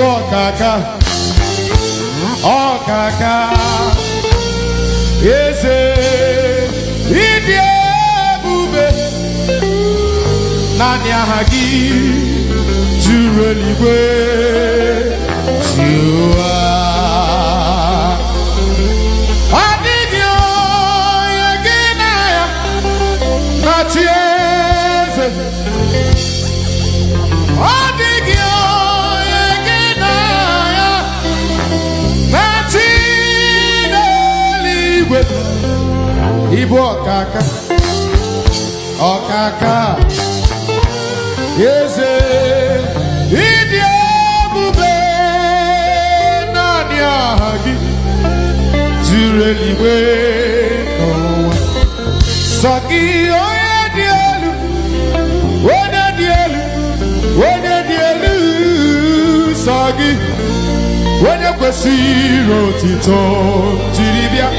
Oh, Kaka. Oh, Kaka. Yes, eh. India, Bube. Nanya Hagi. Jureliwe. Jua. Ibo ọkaka ọkaka eze ịdị ebube naanị aha gị zuru eluigwe dielu, sọ gị onye dị elu onye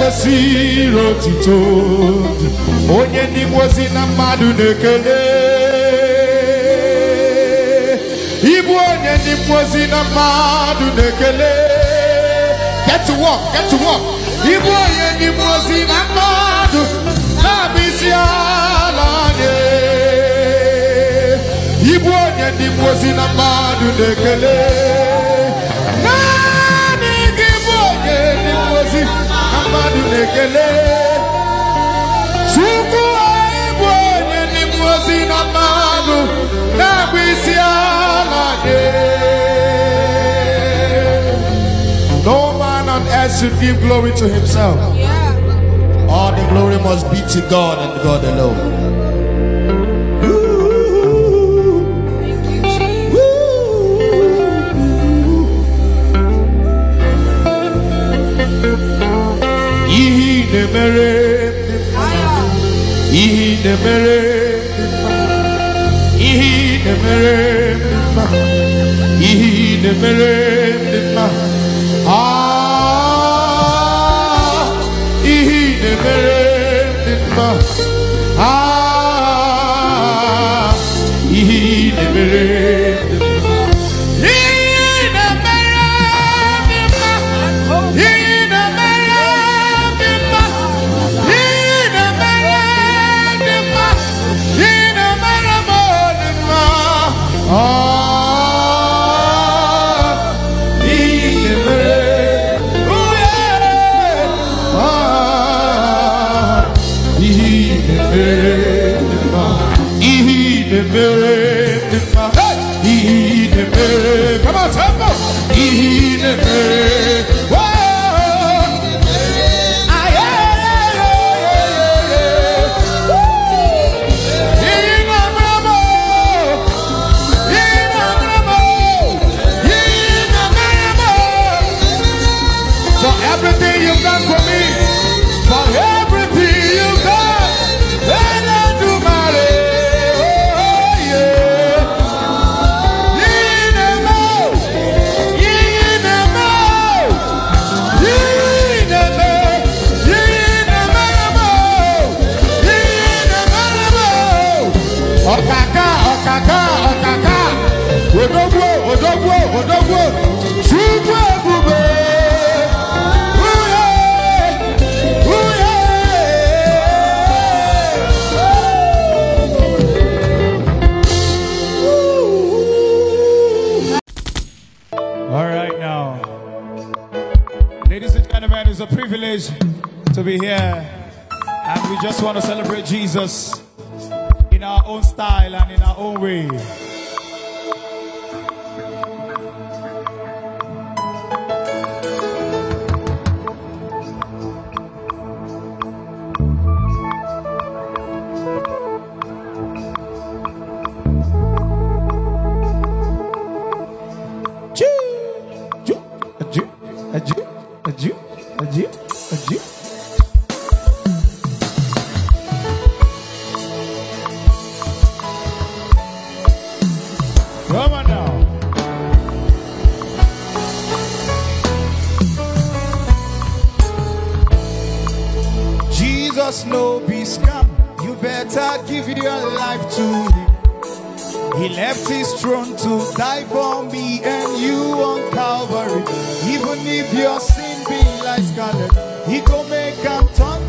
kwesịrị otito onye ndị ngozi na mmadụ na-ekele ịbụ onye ndị ngozi na mmadụ na-ekele get to work get to work ịbụ onye ndị ngozi na mmadụ na-abụ isi ala anyị ịbụ onye ndị ngozi na mmadụ na-ekele No man on earth should give glory to himself. All the glory must be to God and God alone. na-emere ihe ị na-emere ihe ị na-emere i i to be here. And we just want to celebrate Jesus in our own style and in our own way. Adieu, adieu, adieu, adieu. He left his throne to die for me and you on Calvary. Even if your sin be like scarlet, he go make and turn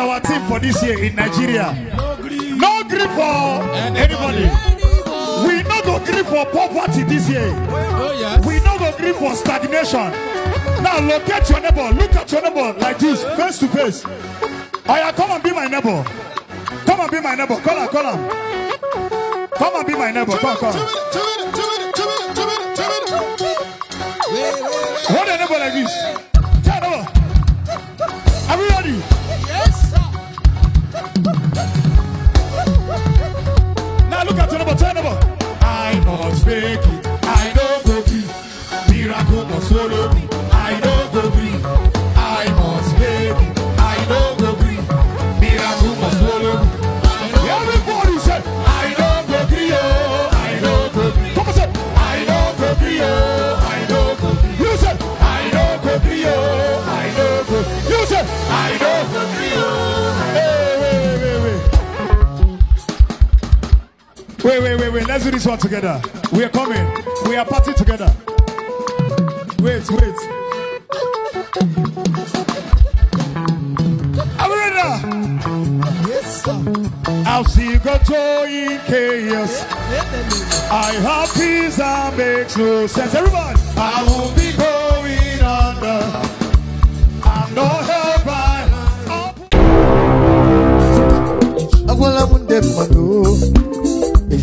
our team for this year in Nigeria. No grief for anybody. We not go grief for poverty this year. We not go grief for stagnation. Now locate your neighbor. Look at your neighbor like this, face to face. Aya, come and be my neighbor. Come and be my neighbor. Call her, call her. Come and be my neighbor. Come, come. Hold your neighbor like this. Let's do this one together. We are coming. We are party together. Wait, wait. Are we ready? Yes, sir. I'll see you go to in chaos. I have peace that makes no sense. Everybody. I won't be going under. I'm not held by. I will have one dead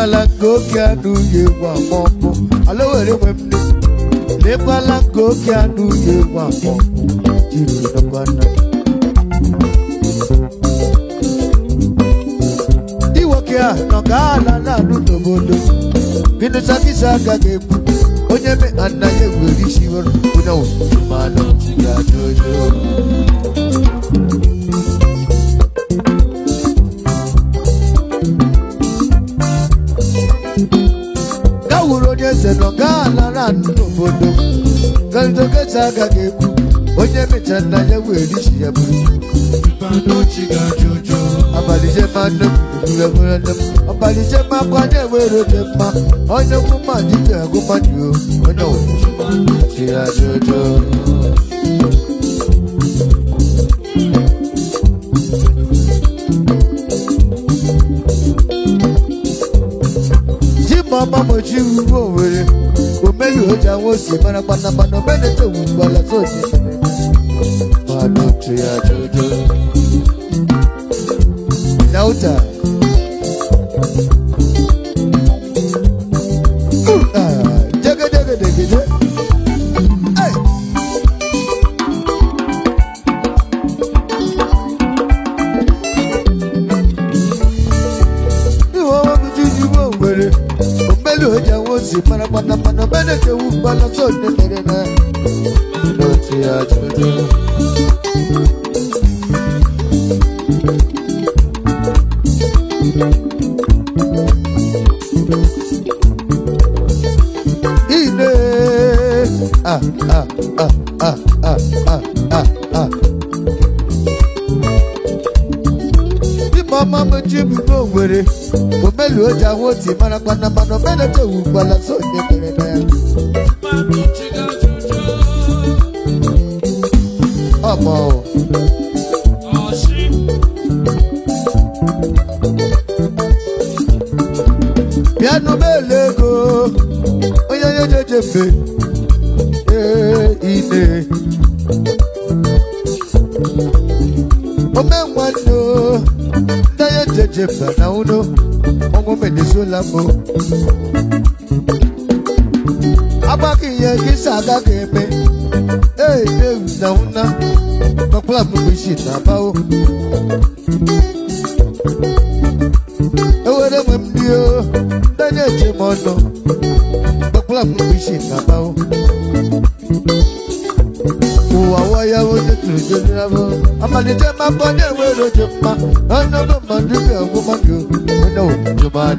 Lebala gokia du ye wa mopo Alowere wemne Lebala gokia du ye wa mopo Jiru na bana Iwokia no gala na du nobolo Binu sakisa gagebu Onye me anaye weri shiwar Una usu malo Ya dojo Thank you. eze nọ gaa lara n'obodo galidogeta agaghị ekwu onye mecha nna ya wee richi ya bụrụ ọbalịjema akwa na mma onye kwuma dike onye ọwụwa mama mochi uwe oja wosi Mana pana pana Mene te umbala zoti jojo Nauta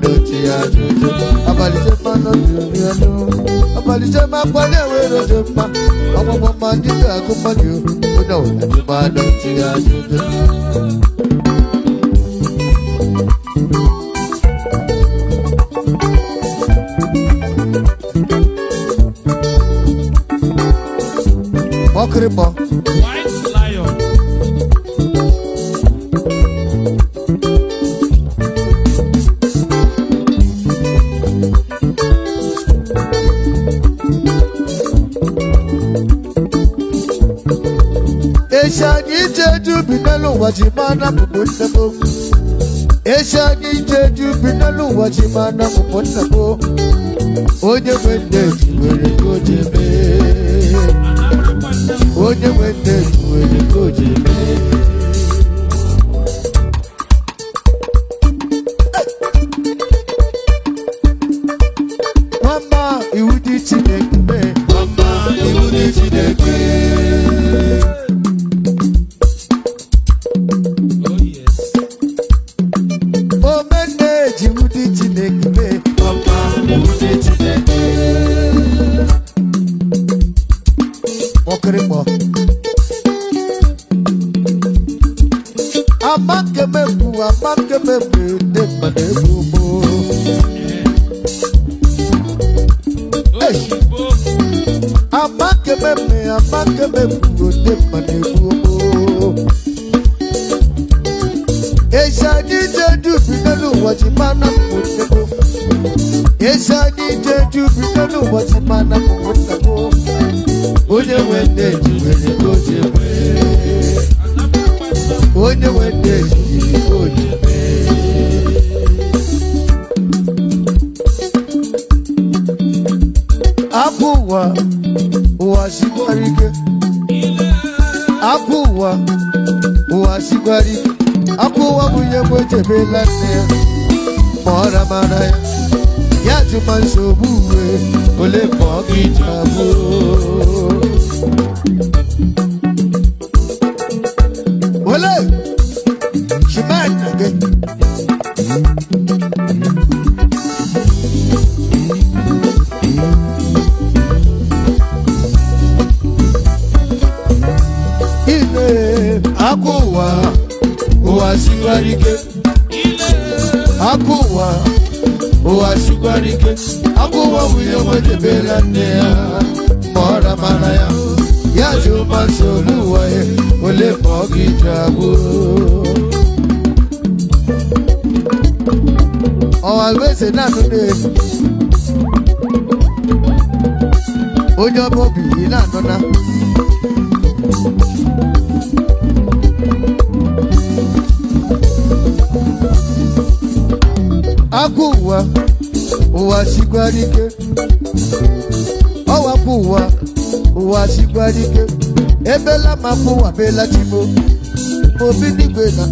dọ̀tí àdúgbò. Àbàlìjẹ́ máa lọ sí omi ẹnu. Àbàlìjẹ́ máa pọ́lé ìwé ìrọ̀jẹ̀ pa. Ọmọ ọmọ máa dídé àgọ́mọ́dé o. Ó dà òun ẹ̀jú máa dọ̀tí àdúgbò. Mọ́kìrì mọ́. n'elu ụwa ji maa na mụbụ nsebo echi aga ije eji ubi n'elu ụwa ji maa na mụbụ nsebo onye nwe nne ji nwere ka o ji eme onye weta ejiji odibe apụ ụwa ụwa sikwara ike apụ ụwa ụwa sikwara ike apụ ụwa bụ ihe mgbe ejebela nne ya ma ọ ramara ya ya jụma nsogbu uwe ole ma ọ gị ji abụọ Tanzania mara mara ya ya juma sobu wa ye ole mogi jabu Owa gbèsè náà tún dé. Onye ọbọ bìí náà nọ́nà. n'ike kuwa uwachikwa dike ebela makuwa bela chimo mobinigwe na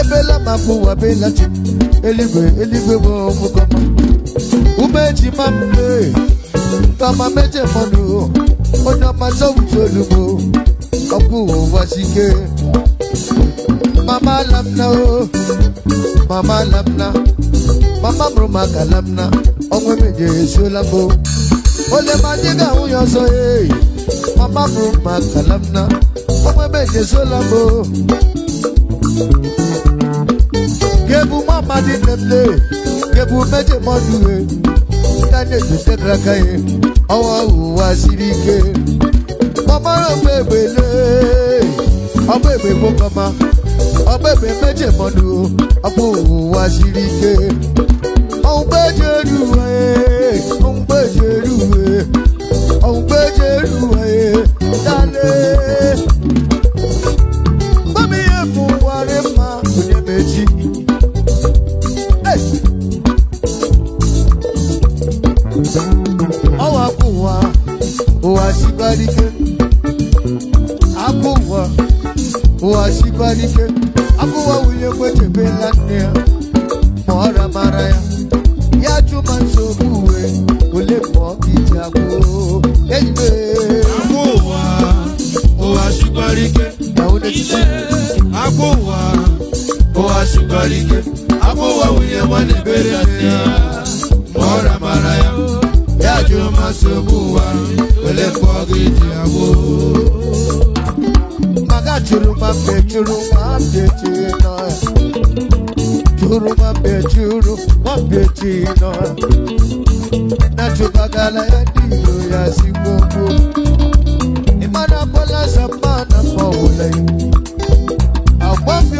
ebela makuwa bela chimo eligwe eligwe wo mukoma umeji mambe kama meje monu onye ọma sọwụsọ olugbo ọkụ ụwa sike mama lamna o mama lamna mama mụrụ maka lamna ọnwa emeje esuola mbụ ole madibia uyoso e amabu makalamna omwebeje solabo gebu mamadi nemle gebu meje mọdue kaneju tekraka ye ọwọ́ òwúwa síbi ike ọmọ rẹ̀ ọgbẹ́ ìgbélé ọgbẹ́ ìgbé mọ́kànmá ọgbẹ́ ìgbé méje mọ́nu ọgbẹ́ òwúwa síbi ike ọ̀hún gbẹ́jẹ̀ rú ẹ̀ ọ̀hún gbẹ́jẹ̀ rú ẹ̀ òun gbé jẹ́rù ẹ̀ dálé. Bámi èkún wàrẹ́ máa kò ní méjì. Ọwọ́ àkùnwá, òwà síbáríkẹ́. Àkùnwá, òwà síbáríkẹ́. Àkùnwá wùlé pẹ̀tẹ̀ bẹ́ẹ̀ lánàá ya. Mọ̀ọ́ra mara ya. Yájú máa ń sọ òkú wẹ̀, kò lè pọ̀ ìjà kó kẹ́yìnbé. àpò wa ó wá sí gbáríkẹ́. ìyàwó lè ṣe. ya mọ́ra mara ya. yájú máa ṣe mú wa pẹ̀lẹ́ fọ́ gidi àwò. màgá jùlọ máa bẹ̀ jùlọ máa ma bẹ juru ma bẹ I'm ịmana bọlasa mana pọwụla iwu agwa bi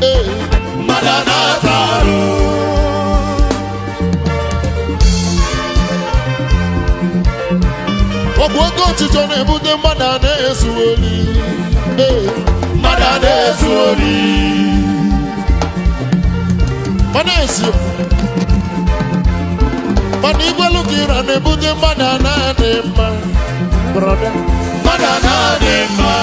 ọ bụ oke ọchịchọ na-ebute mmadụ na-ezu ori eh. mmadụ na-ezu ori ọ mana igwelu ka ịra na-ebute mmadụ na-adị mma mmadụ na-adị mma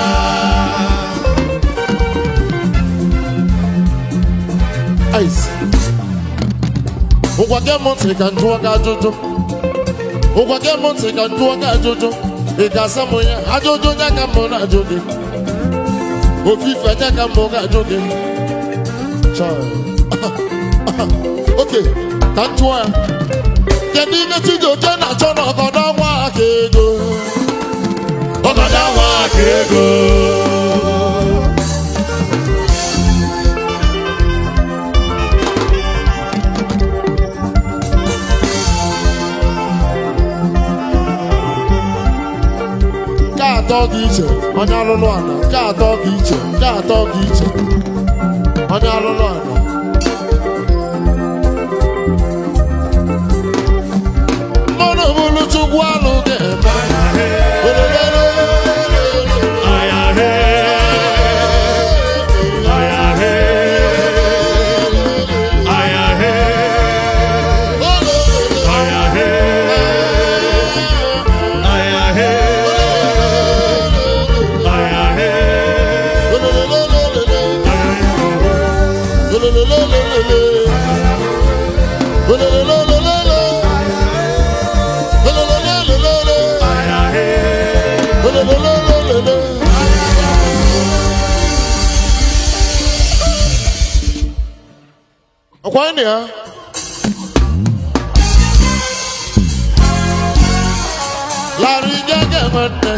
ụgwa gị m ntị ka njụọ gị ajụjụ ụgwa gị ka njụọ gị ajụjụ ị ga ya ajụjụ na-ajụ gị ofufe nye ka m ga-ajụ gị oke ka kedu ihe na atọ dị iche onye alụlụ ala nke atọ iche nke atọ iche onye ala chukwu alụ ga-eme Come here. Larry Gagamante.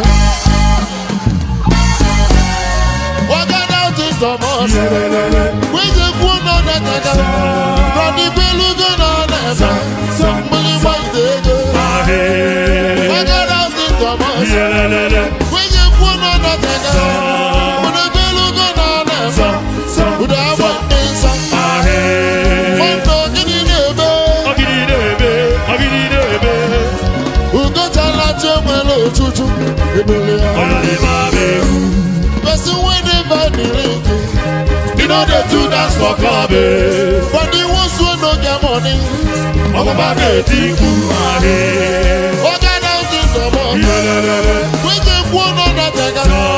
Walking out in the morning. With the good on the nigga. From the Belugan on the Somebody might take it. Walking out in the morning. With the good on the nigga. ebele ahụ. Person wey dey buy the ring, e no dey too dance for club eh. But the ones wey no get money, ọgbọgba dey think you are here. Organizing the money, wey dey kwuo n'ọnọdụ ẹ̀ka.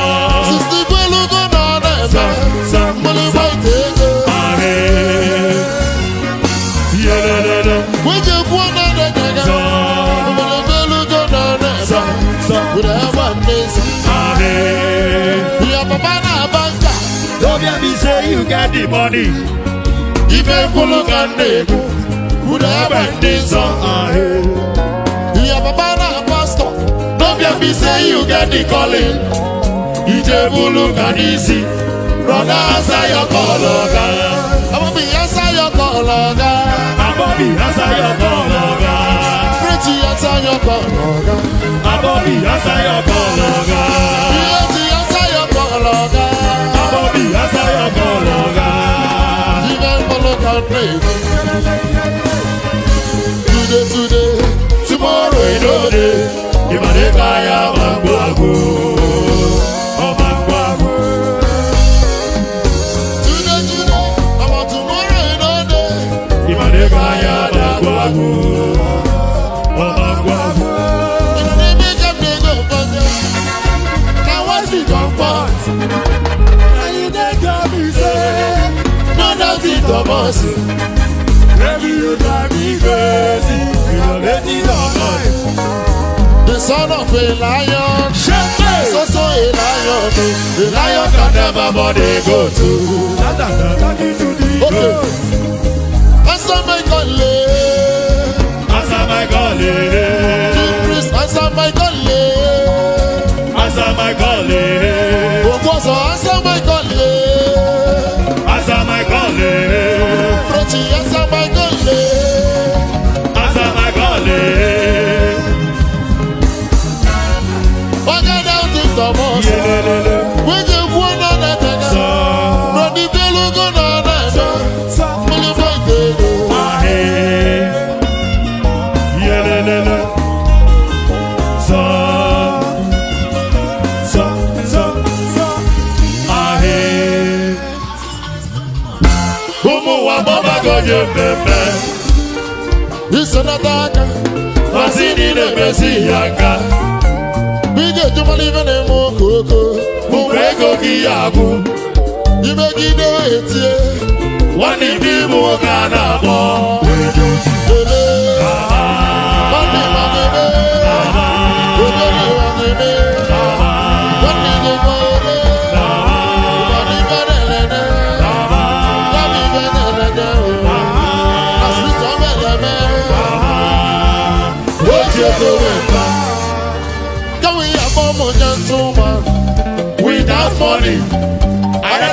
say you got the money. if you Ife fulu ka na-ekwu, unu ebe ndị nsọ ahụ. Ihe papa na don't n'obi efi say you got the calling. if you Ije fulu ka n'isi, brọda asa ya kọlọ ga. Ababi be ya kọlọ ga. Ababi asa ya kọlọ ga. Prechi asa ya kọlọ ga. Ababi asa ya kọlọ ga. Ihe ji asa ya kọlọ ga. crazy. Baby, you drive me crazy. You're lady all night. The son of a lion. Shepherd. So so a lion. A oh. lion can never body go to. Talking to the okay. Answer my calling. Answer my calling. King priest, answer my calling. Answer my calling. Okoso, answer my calling. bebebe isenata aka masini na-emezi ya aka ị ga eme okoko mgbe ego gị ya bụ imegide etie nwanne ibe ịbụ nwoke a na-akpọ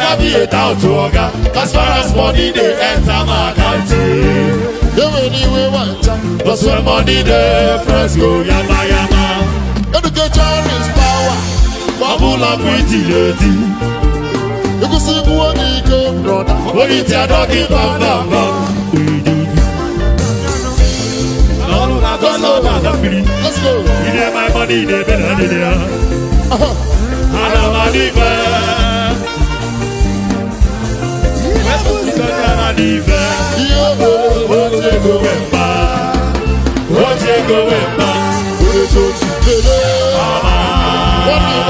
I be a doubt to Oga. As far as money, they enter my county. They will anyway want to. Plus, when money, they press go yama yama. Education is power. Bubble up with the lady. You can see what he came, brother. What is your dog in Bamba? Let's go. You need my money, they my than they are. I don't money, go 왼발 어제가 왼발 오늘 조심들은 아마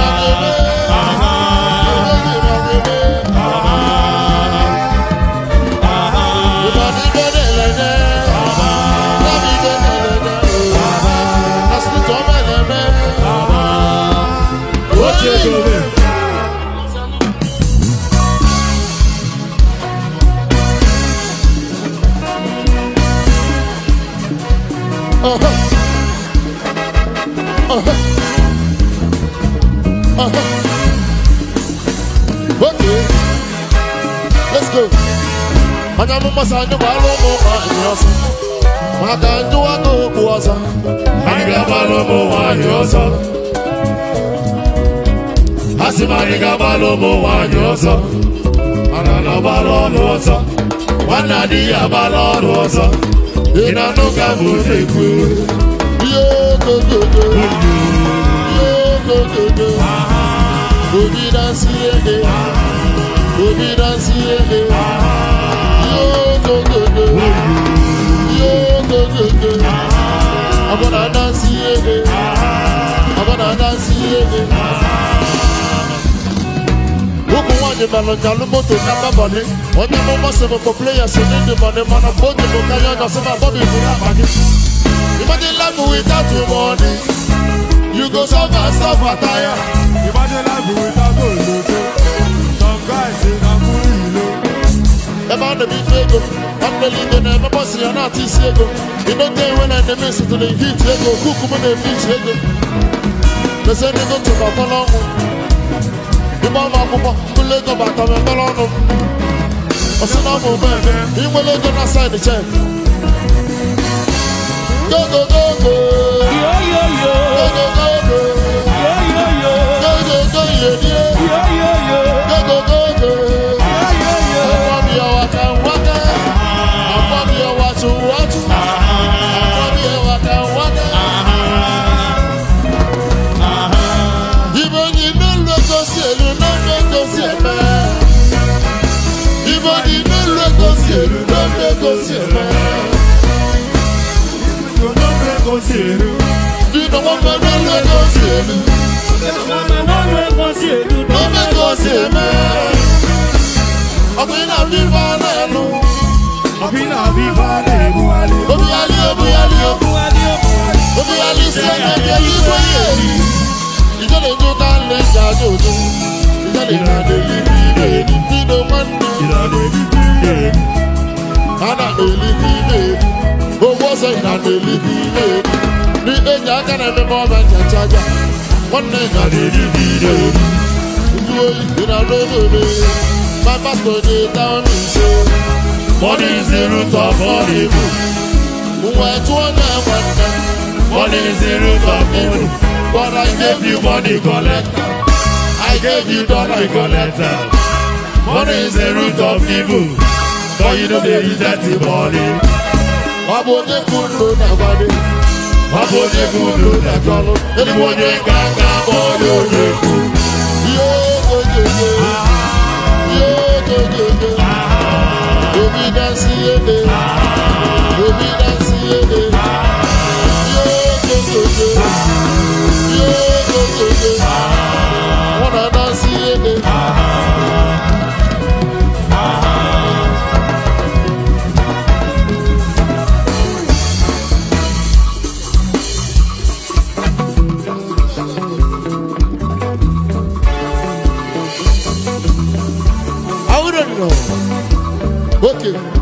masa nyumba lomo anyosa makanjua no kuasa manigaba lomo anyosa asi manigaba lomo anyosa anana balolosa wanadiya balolosa inanuka muteku yogogogo yogogogo ege, yege obidansi ege. I'm gonna dance yeah. I'm gonna dance yeah. Look what the melon jalumo to number money. What the moment seven for players who need the money, man, I'm going to go carry on some body for that money. Imagine life without the money. You go suffer, suffer, tire. Imagine life without the money. Some guys say I'm cool, you know. About the big figure. Unbelievable, they never pass you on artist ego. You don't care when I miss it to the heat ego. Cook when they reach ego. They say they go to the column. The mama papa, the leg of Batam and Balonum. I said, I'm over there. He will go outside the check. Go, go, go, go. Yo, yo, yo. Go, go, go, Yeah yeah yeah! yo. Go, go, go, Yeah yeah yeah! yo, yo. go, go, go. elu. Mama no no ekosi elu. No no ekosi elu. Ọ̀gbìn náà bí bá lẹ́nu. Ọ̀gbìn náà bí bá lẹ́nu alẹ́. Obìyálé obìyálé obìyálé obìyálé sí ẹgbẹ́ ẹbí wáyé rí. Ìjọba ètò tá a lè jà jòjò. Ìjọba ìrìnàjò yìí bí ìbéèrè ní tí ló máa ń dùn. Ìrìnàjò yìí bí ìbéèrè. Ana èlì bí ìbéèrè. Owó sọ ìrìnàjò yìí bí ìbéèrè. Ni èjì aka na-eme ma ọ bụ nchacha aja. One thing I did nwanne ya riri n'ire ndị oyi dị na n'obere baba tonye down in show. money is the root of all evil nwa tụọ na nwanne money is the root of evil but i gave you money collector i gave you dollar collector money is the root of evil but you no dey use that money ọ bụ onye kwuru na nwanne da ọ bụ onye bụ onye na-achọlụ ịbụ onye ga aga onye onye ekwu ihe ogogogo ihe ogogogo obi dasị ihe dị obi dasị ihe dị ihe ogogogo ihe ogogogo ọ na-adasị ihe dị you.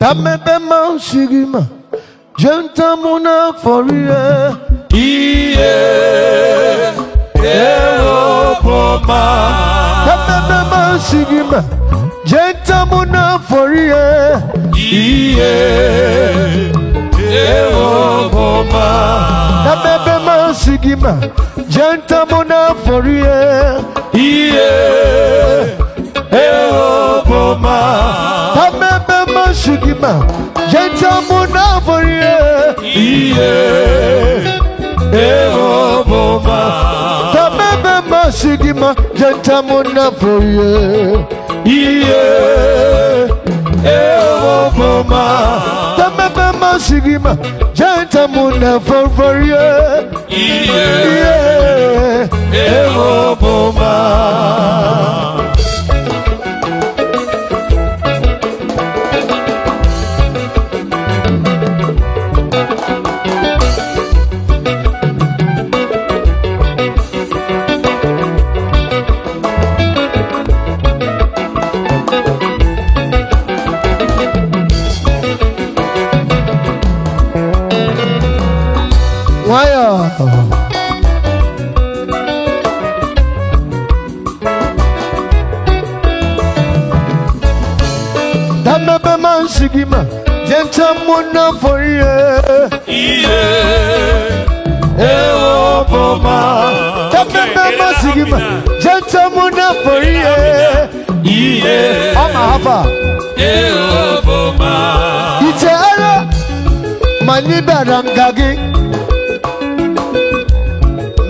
Tame bema sigima Jenta muna forie Iye Ewo poma Tame bema sigima Jenta muna forie Iye eoboma na bebe masigima jantamona forie iye eoboma na bebe masigima jantamona forie iye eoboma na bebe masigima jantamona forie iye. ewo mama tamebe masigima janta muna yeah, iye ewo mama Adima Jentamuna for ye Ewo Boma Tapemba Sigima Jentamuna for ye Amahaba Ewo Boma Ite Ara Maniba Rangagi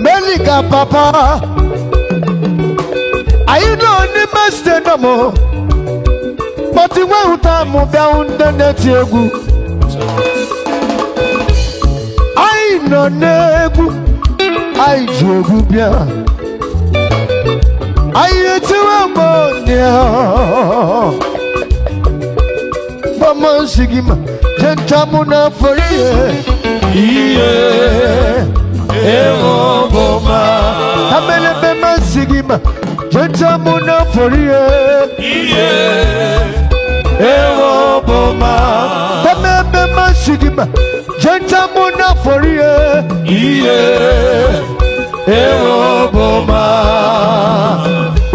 Melika Papa I don't need my stand no more But you won't have moved down the net. I know Nebu. I drove you. I had to a money. But my sigma, Gentamuna for you. Ewo boma. Amele bema sigima. Gentamuna for you. Yeah. ewoboma eme mmasị gị ma jenta mụ n'afọ rie ihe ewoboma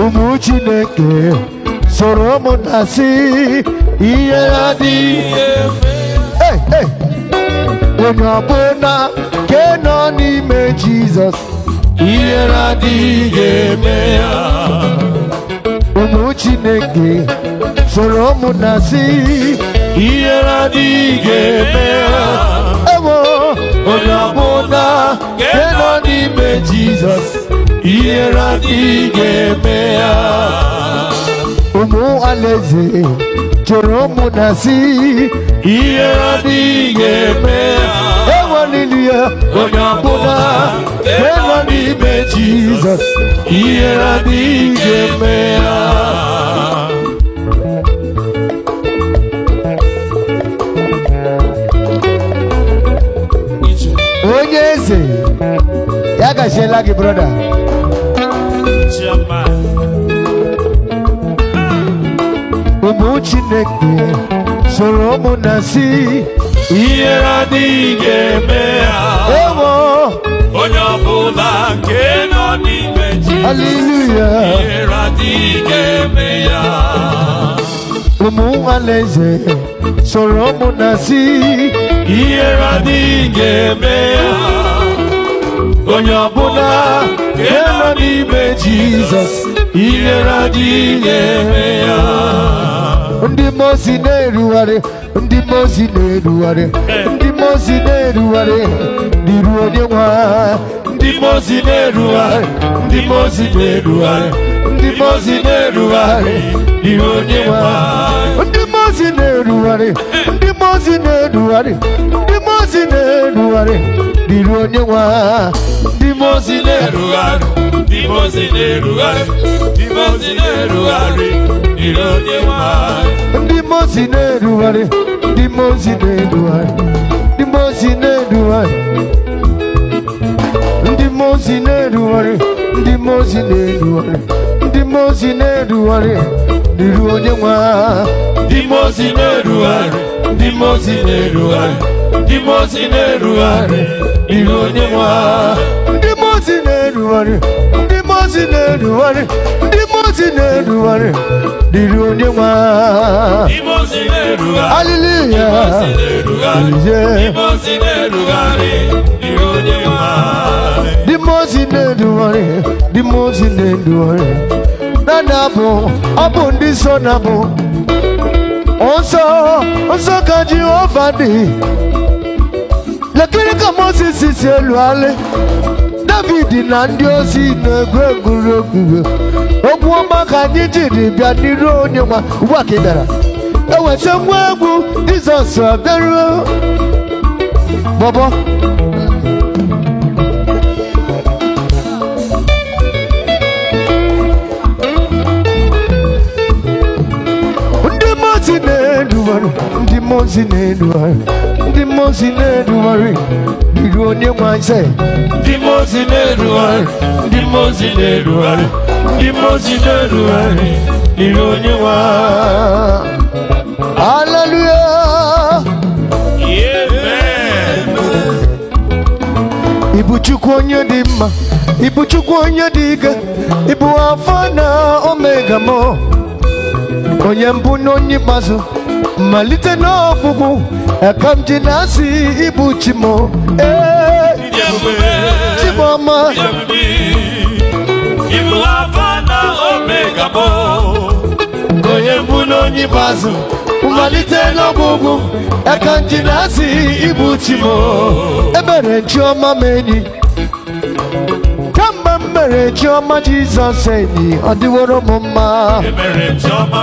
ụmụ chineke soro mụ na si ihe adịghị efe onye ọbụla ke nọ n'ime jizọs ihe adịghị eme ya ụmụ chineke soro munasi ihe na di ewo onye ọbụla nke nọ n'ime jizọs ihe na di ụmụ alaeze chọrọ munasi ihe na dị ga-eme ya ewelili ya onye ọbụla nke nọ n'ime jizọs kashe lagi brother ụmụ ah. chineke soro ụmụ na si ihe adịghị eme ewo onye ọbụla nke nọ n'ime Hallelujah. ihe adịghị ga-eme ya ụmụ nwalaeze soro ụmụ na si ihe adịghị eme ya onye ọbụla nke nọ n'ime Jizọs inyere adịghị na-eme ya ndị mozi na-erugharị ndị mozi na-erugharị ndị mozi na-erugharị n'iru onye nwe ha ndị mozi na-erugharị ndị mozi na-erugharị ndị mozi na-erugharị n'iru onye nwe ha ndị mozi na-erugharị ndị mozi na-erugharị na onye ndị na-erugharị ndị na-erugharị ndị na-erugharị onye nwe ndị na-erugharị ndị na-erugharị ndị na-erugharị ndị na-erugharị ndị na-erugharị ndị na-erugharị ndị mmụọ si na-erugharị ihe onye nwe ha ndị mmụọ si na-erugharị ndị mmụọ si na-erugharị ndị mmụọ si na-erugharị dịrị onye nwe ha aliliya aliye ndị mmụọ si na-erugharị ndị mmụọ si na-erugharị dada bụ ọ bụ ndị so na bụ nsọ nsọ ka Jehova dị lekiri ka Mozis si eluali David na ndị ozi na-egwu egwuregwu okwu ọma ka anyị jiri bịa n'iru onye nwa ugbu a ka ị bịara eweta nwa egwu Jizọs bịaruo bọbọ ndị mozi na-eduwara ndị mozi na-eduwara The most in everywhere, the good name I say. The most in everywhere, the most in everywhere, the most in everywhere, the good name I. Hallelujah. Amen. Ibuchukwu onye dị mma, Ibuchukwu onye dị ike, Ibu Alfa na Omega mo, onye mbụ na onye malite n'ọgwụgwụ aka m ji na asi ịbụ chimo ee chimoma ibu afa na omega bụ onye mbụ n'onye ikpeazụ malite n'ọgwụgwụ aka m ji na-asị ịbụ chimo ebere chioma m enyi kemgbe m mere chioma jizọs enyi ọ dịworo m mma Chioma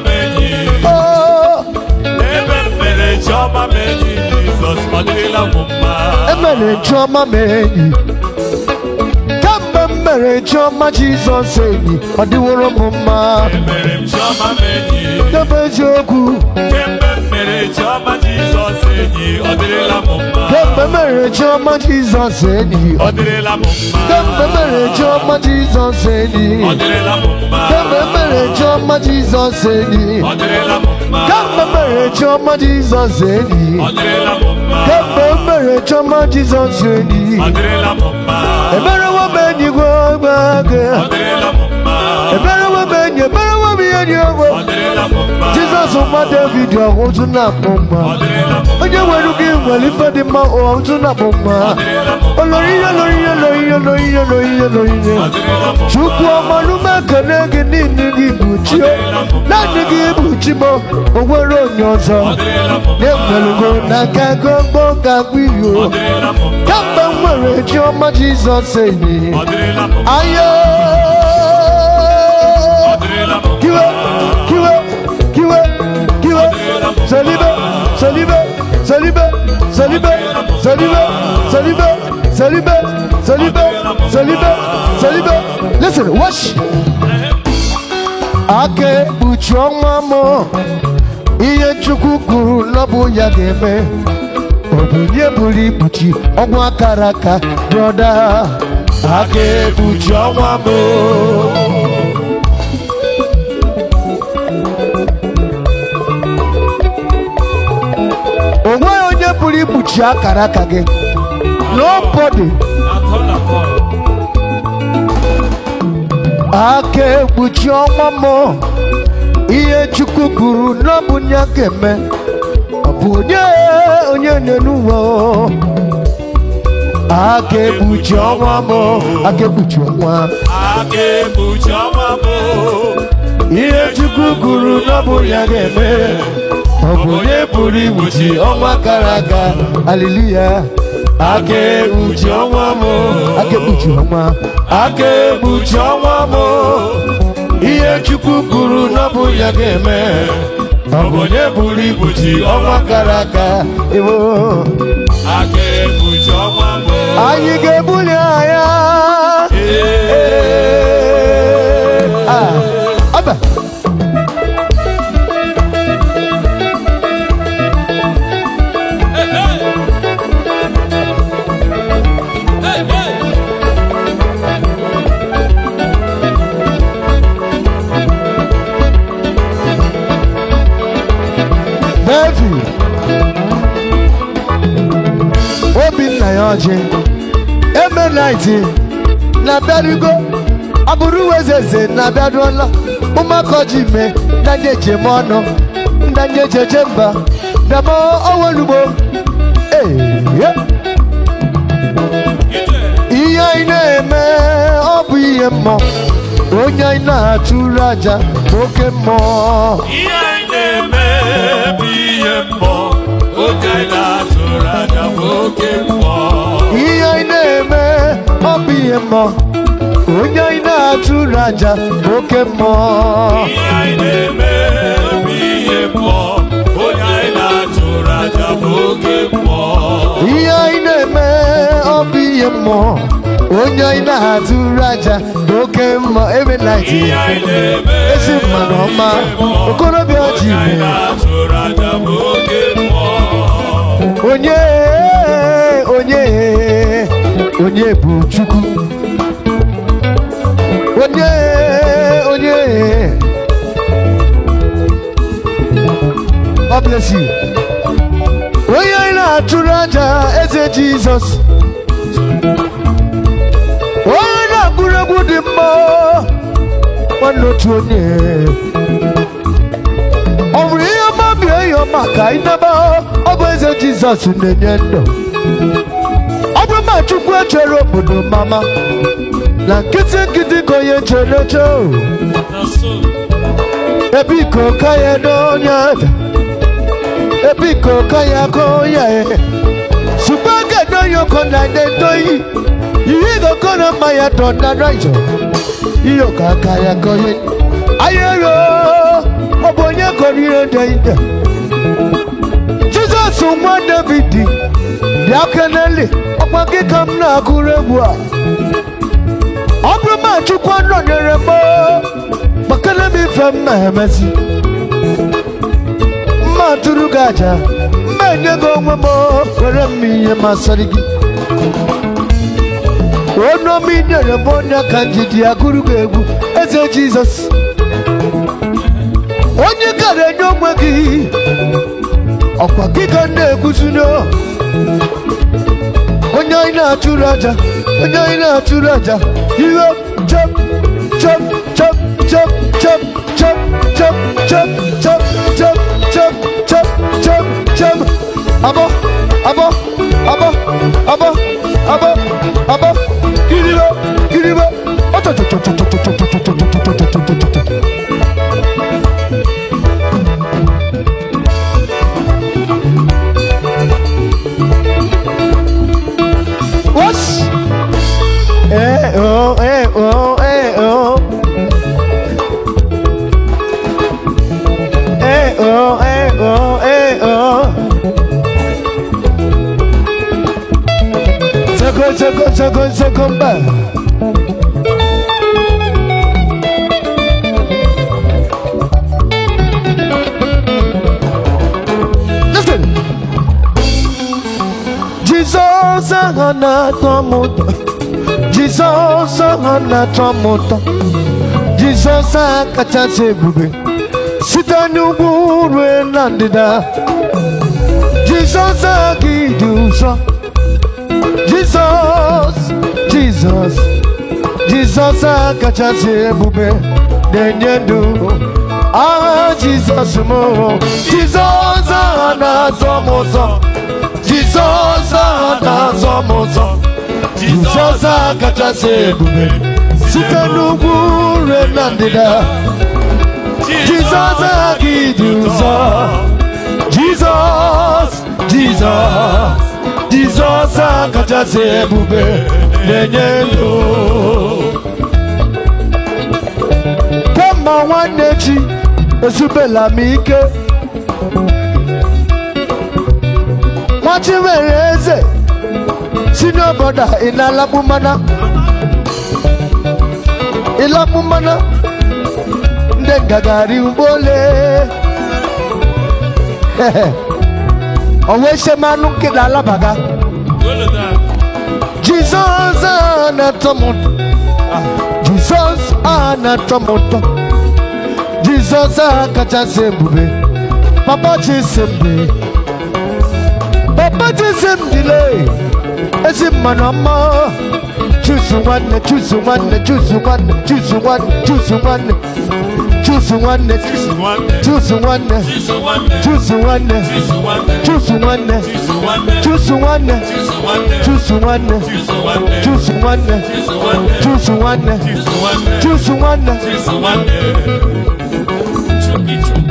Emere Chioma menyi Jizọs madirila m mma Emere Chioma menyi Kamgbe m mere Chioma Jizọs enyi ọ dịworo m mma Emere m Chioma menyi Debe eziokwu Kemgbe m mere Chioma Jizọs enyi ọ dịrịla mma Kemgbe mere Chioma Jizọs enyi ọ dịrịla mma Kemgbe mere ọma Jesus, enyi kemgbe mere chiọma Jizọs enyi kemgbe mere chiọma Jizọs enyi kemgbe mere chiọma Jizọs enyi emerewo m enyi gwe gbe gị ebere benye ebere wemi enyi ewo jizọs nwa david ọhụ ntụ na-akpụ mma onye nwere gị nwere ife dị mma ụwa ntụ na-akpụ mma olorihe lorihe lorihe lorihe lorihe lorihe chukwu ọma n'ume ekele gị niile gị bụ chi naanị gị bụ chi m onwere onye ọzọ na-enwelugo n'aka gọgbọ ga-agwụ iyo kamgbe m nwere chiọma jizọs enyi ahịa Salibé, Salibé, Salibé, Salibé, Salibé, Salibé, Salibé, Salibé, Salibé, Salibé. Listen, watch. Ake buchoma mo iye chukwu kwuru na ya geme. eme obinye buru ogwa karaka, brother. Ake broda aka mo bụrụ ikpuchi akara aka gị nobody aka ekpuchi ọnwa m ihe chukwu kwuru n'ọbụ a ga-eme onye onye aka ekpuchi ọnwa m aka ekpuchi ọnwa ga-eme ọ bụ onye pụrụ igbochi ọnwa gara aga aliluya aka ekpuchi ọnwa m aka ọnwa aka ọnwa m ihe chukwu kwuru n'ọbụ ya ga-eme ọ bụ onye pụrụ igbochi ọnwa gara aga ewo aka ekpuchi ọnwa m anyị ga-ebuli anya ọjị emenaiti na-abịarugo ọbụrụ uwe eze eze na-abịaruola ụmụaka ji mee ndanye ejem ọnụ ndanye ejeje mba dama onwelugbo ee ihe anyị na-eme ọ bụ ihe mmụọ onye anyị na-atụrụ aja oke mmụọ ihe anyị na-eme ọ ihe mmụọ onye anyị na-atụrụ aja bụ oke mmụọ ihe anyị na-eme ọ bụ ihe onye anyị na-atụrụ aja bụ oke mmụọ ihe na-eme onye na oke mma ebe ezi ọma okorobịa ji ime onye onye onye bụ chukwu onye onye God bless you onye na-achụrụ aja eze jizọs onye na-agụrụ egwu dị mma nwanne otu onye ya maka inebe ọ bụ eze jizọs na-enye ndụ ọ bụ ma chukwu echere obodo mama na nkịtị nkịtị ka onye chere eche ebiko ka ya na onye ada ebiko ka ya ka onye sugbo ga n'oyoko na ndendoyi ihe goko na mmanya tọ na raizo ihe ka aka ya ka onye ayero ọ bụ onye kọrọ ihe ndị so nwa david bịa keneli ọkwa gị ka m na-agụrụ egwu a ọ bụrụ ma chukwu nọnyere m makana m ife mma emezi mma tụrụ gị aja mma enye gị onwe m were m ihe masịrị gị onomi nyere m onye aka njidi agụrụ onye ọkwa gị ka m na-ekwuzina onye anyị na-achụrụ aja onye anyị na-achụrụ aja iwe chop chop chop chop chop chop chop chop chop chop chop chop chop chop abọ abọ abọ abọ abọ na-atọ m ụtọ jizọs a kachasị ebube site n'ugwu rue na ndịda jizọs a gị dị ụzọ jizọs jizọs jizọs a kachasị ebube na-enye ndụ aha jizọs m jizọs aha na azọ m ụtọ jizọs aha na azọ m ụtọ jizọs a kachasị ebube site n'ugwu nre na ndịda jizọs aghaghị dị ụzọ jizọs jizọs jizọs kachasị ebube na-enye ndụ kemgbe nwanne chi ezubela m ike chi nwere eze si n'obodo a ị na-alakpu mana ilamu mana nde gagari mbole onwe se manu kila alabaga Jesus anatomoto ah, Jesus anatomoto Jesus akachasị ebube papa chisimdi papa chisimdile ezi mmanụ ọma choose one, choose one, choose one, choose one, choose one, choose one, choose one, choose one, choose one, choose one, choose one, choose one, choose one, choose one, choose one, choose one, choose one, choose one, choose one, choose one.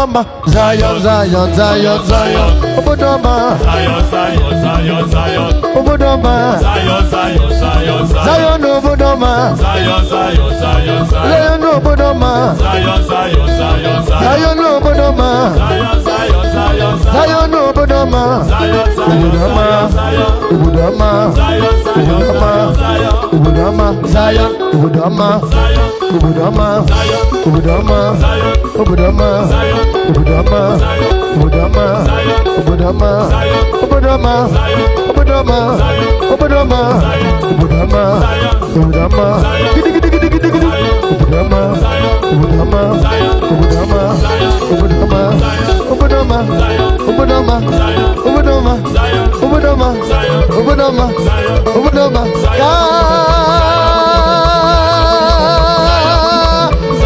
Obodoma Zion, Zion, Zion, Zion Obodoma Zion, Zion, Zion, Zion Obodoma Zion, Zion, Zion, Zion Obodoma Zion, Zion, Zion, Zion Obodoma Zion, Zion, Zion, Zion Obodoma Zion, Zion, Zion, Zion Obodoma Zion, Zion, Zion, Zion Obodoma Obodoma ubudama Zion, ubudama Obudama, ubudama Obudama, ubudama Obudama, ubudama Obudama, ubudama Obudama, ubudama Obudama, ubudama gidi ubudama gidi gidi Obudama, Obudama, Obudama, Obudama, Obudama, Obudama, Obudama, Obudama, Obudama, Obudama, Obudama,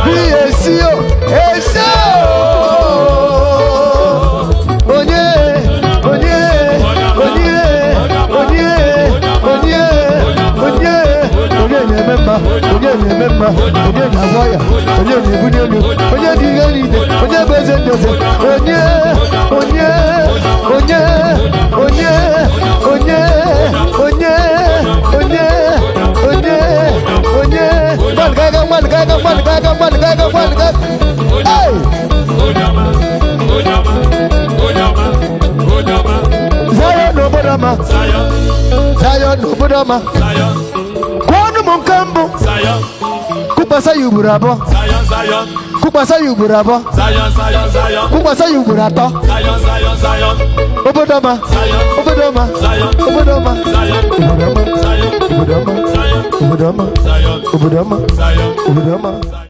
Bí èsì o, èsì o. mẹ́ma onye na ememma onye na agwa ya onye na ebuli elu onye dị ihe niile onye bụ eze ndeze onye onye onye onye onye onye onye onye onye mmadụ gaga mmadụ gaga mmadụ gaga mmadụ gaga mmadụ gaga hey! Zion n'obodo ọma Zion n'obodo ọma nke mbụ kụkpasa ya ugboro abụọ kụkpasa ugboro abụọ kụkpasa ugboro atọ obodo ọma obodo ọma obodo ọma obodo ọma obodo ọma obodo ọma obodo ọma